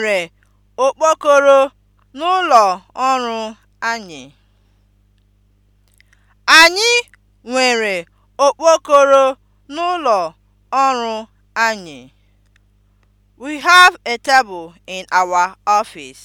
nwere okpokoro n'ụlọ ọrụ anyị. Anyị nwere okpokoro n'ụlọ ọrụ anyị. We have a table in our office.